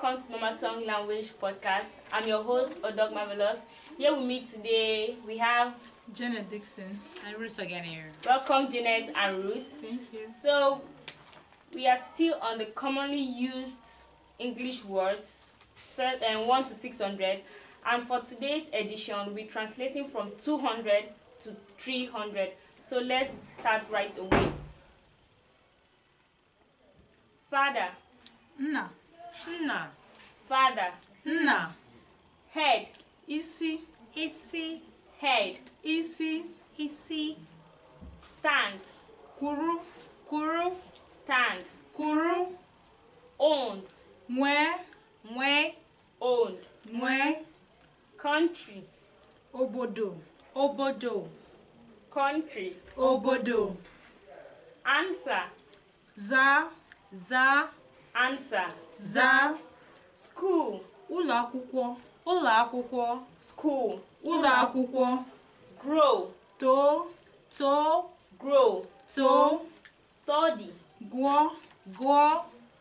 welcome to Mama Song Language Podcast. I'm your host, Odog Marvelous. Here with me today, we have Janet Dixon and Ruth again here. Welcome, Janet and Ruth. Thank you. So, we are still on the commonly used English words, first, and um, 1 to 600. And for today's edition, we're translating from 200 to 300. So, let's start right away. Father. No. nna father nna head isi isi head isi isi stand kwuru kwuru stand kwuru owned nwee nwee owned nwee country obodo obodo country obodo answer zaa zaa. ansa zaa skuul ụlọ akwụkwọ skuul ụlọ akwụkwọ grow too too grow too study gụọ gụọ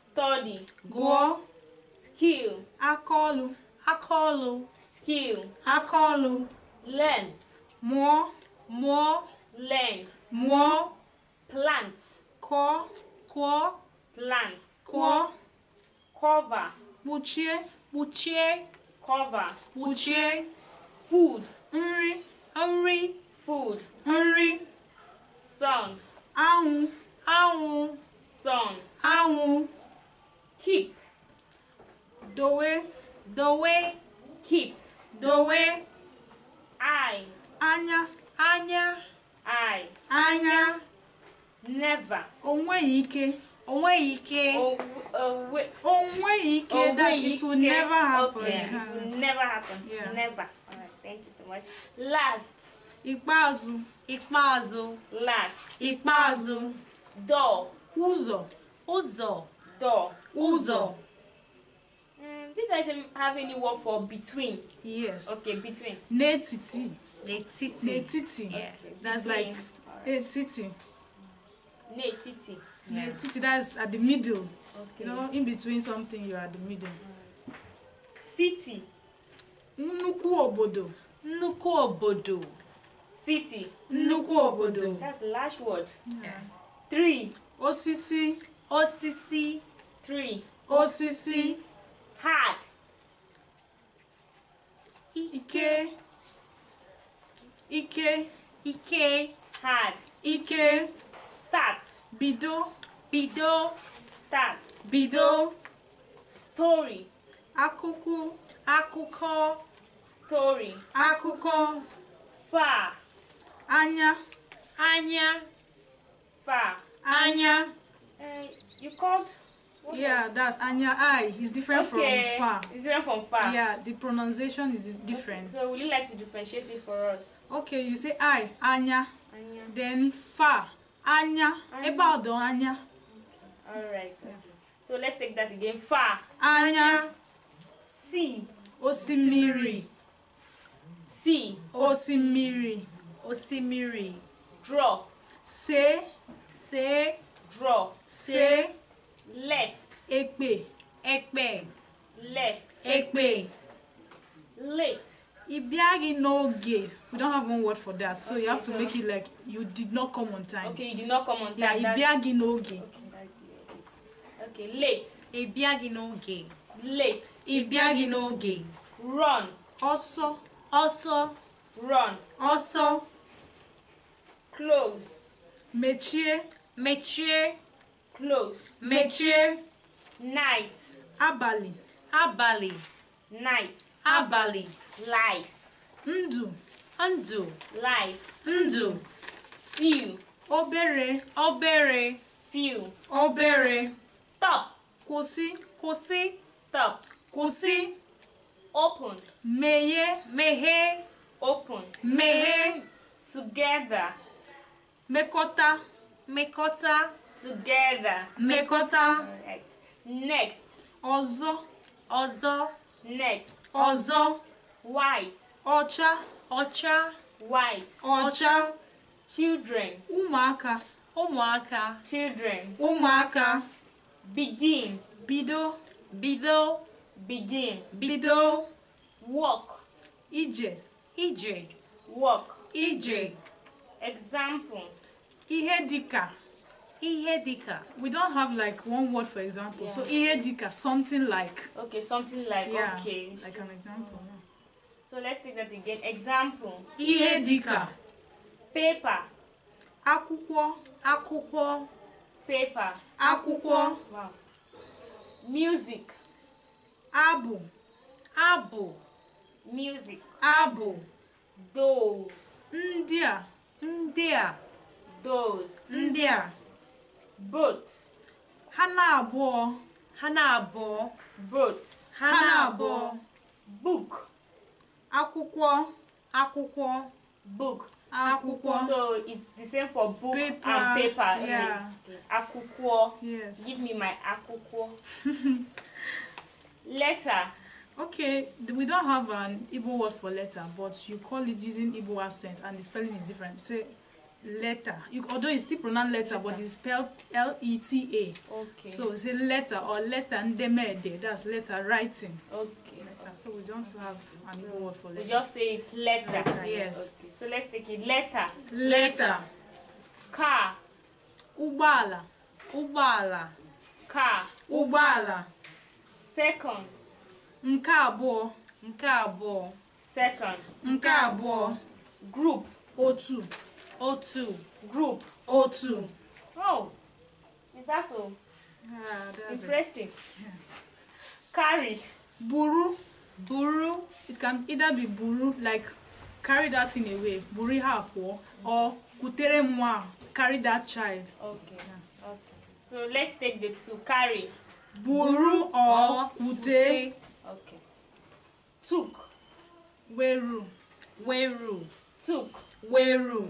study gụọ skil, akaọlụ akaọlụ skil, akaọlụ learn mụọ mụọ learn mụọ plant kụọ kụọ plant kụọ kọva kpuchie kpuchie kọva kpuchie food nri nri food nri sun anwụ anwụ sun anwụ keep dowe dowe dowe eye anya anya anya neva o nweghị ike Onwe ike. Onwe ike. That it will never happen. Okay. It will never happen. Yeah. Never. Alright. Thank you so much. Last. Ikpeazụ. Ikpeazụ. Last. Ikpeazụ. Door. Ụzọ. Ụzọ. Door. Ụzọ. Um, do you have any word for between? Yes. Okay, between. N'etiti. N'etiti. N'etiti. Yeah. That's like right. etiti. N'etiti yeah. titi that's at the middle okay. you know in between something you're at the middle city nnukwu obodo nnukwu obodo city nnukwu obodo that's large word yeah. three osisi osisi three osisi hard ike ike ike hard ike start bido bido start bido story Akuku, akuko, story Akuko, fa anya anya fa anya uh, you called What yeah, else? that's Anya I. It's different okay. from Fa. It's different from Fa. Yeah, the pronunciation is different. Okay. So, would you like to differentiate it for us? Okay, you say I, Anya. Anya. Then Fa, Anya. Anya. About the Anya. All right. Okay. So let's take that again. Fa. Anya. Si. Osimiri. Si. Osimiri. Osimiri. Draw. Se. Se. Draw. Se. Left. Ekpe. Ekpe. Left. Ekpe. Late. Ibiagi noge. We don't have one word for that, so okay, you have to so make it like you did not come on time. Okay, you did not come on time. Yeah, ibiagi noge. Okay. Okay, late. Ịbịaghị n'oge. Late. Ịbịaghị n'oge. Run. Ọsọ. Ọsọ. Run. Ọsọ. Close. Mechie. Mechie. Close. Mechie. Night. Abalị. Abalị. Night. Abalị. Life. Ndụ. Ndụ. Life. Ndụ. Few. Obere. Obere. Few. Obere stop kwụsị kwụsị stop kwụsị open meghee meghee open meghee together Mekota. Mekota. together Mekota. next ọzọ ọzọ next ọzọ white ọcha ọcha white ọcha children ụmụaka ụmụaka children ụmụaka Begin. Bido. Bido. Begin. Bido. Walk. Ije. Ije. Walk. Ije. Example. Ihe dika. Ihe dika. We don't have like one word for example. Yeah. So ihe dika, something like. Okay, something like. Yeah, okay. Like an example. Mm. So let's take that again. Example. Ihe dika. Paper. Akwụkwọ. Akwụkwọ. pepa, akwụkwọ music abụ abụ music abụ those ndị a ndị a those ndị a both ha na-abụọ ha na-abụọ both ha na-abụọ book akwụkwọ akwụkwọ book akwụkwọ so it's the same for book paper. and paper yeah. yeah. akukuo. Yes. Give me my akukuo. letter. Okay, we don't have an Igbo word for letter, but you call it using Igbo accent and the spelling is different. Say letter. You, although it's still pronounced letter, letter. but it's spelled L E T A. Okay. So it's a letter or letter ndemede. That's letter writing. Okay. Letter. So we don't have an Igbo word for letter. We just say it's letter. letter yes. Okay. So let's take it letter. Letter. letter. Car. Ubala. ụgbọala car ụgbọala second nke abụọ nke abụọ second nke abụọ group otu otu group otu oh is that so ah, carry buru buru it can either be buru like carry that thing away buru ha pụọ or kutere nwa carry that child okay. So let's take the two. Carry. Buru or ute. Okay. Took. Weru. Weru. Took. Weru.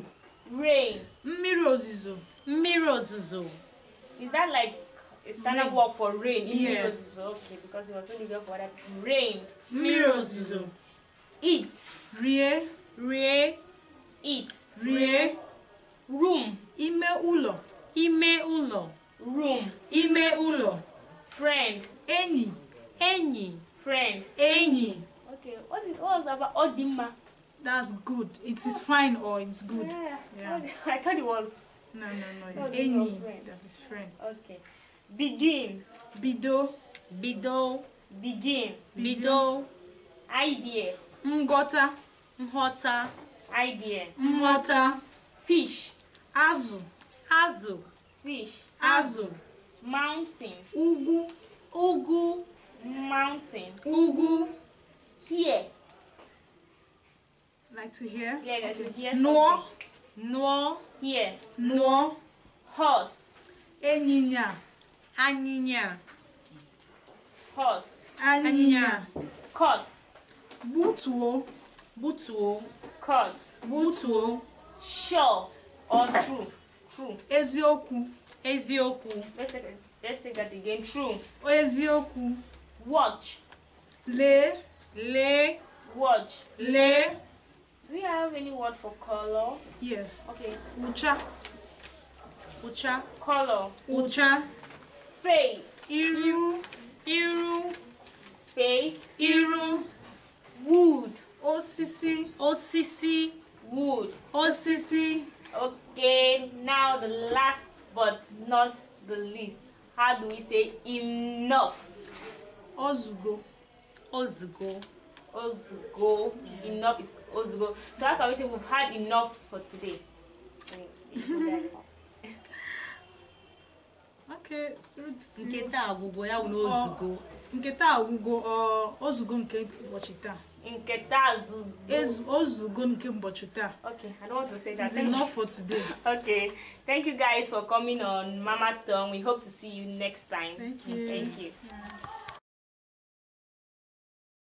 Rain. Mmiri ozizo. Is that like a standard rain. word for rain? Yes. Okay, because it was only there for that. Rain. Mmiri Eat. Rie. Rie. Eat. Rie. Room. Ime ụlọ. Ime ụlọ room ime ụlọ friend enyi enyi friend enyi okay what is what was about odimma that's good it is fine or it's good yeah, yeah. i thought it was no no no it's no, enyi that is friend okay begin bido bido begin bido idea nghọta nghọta idea nghọta fish azụ azụ fish azụ mountain ugwu ugwu mountain ugwu here like to hear yeah like to hear nụọ nụọ here nụọ horse ịnyịnya anyịnya horse anyịnya Cut. butuo butuo Cut. butuo sure or true true eziokwu eziokwu let's take that again true eziokwu watch Le. Le. watch Le. do you have any word for color yes okay ucha ucha color ucha face iru iru face iru wood osisi osisi wood osisi okay now the last but not the least how do we say enough ozugo ozugo ozugo yes. enough is ozugo so how can we say we've had enough for today okay nke taa agwụgwọ ya bụ na oh, oh, ozugo nke taa agwụgwọ ozugo nke ụbọchị taa nke taa ozugo nke ụbọchị taa okay i don't want to say that it's enough for today okay thank you guys for coming on mama tongue we hope to see you next time thank you thank you yeah.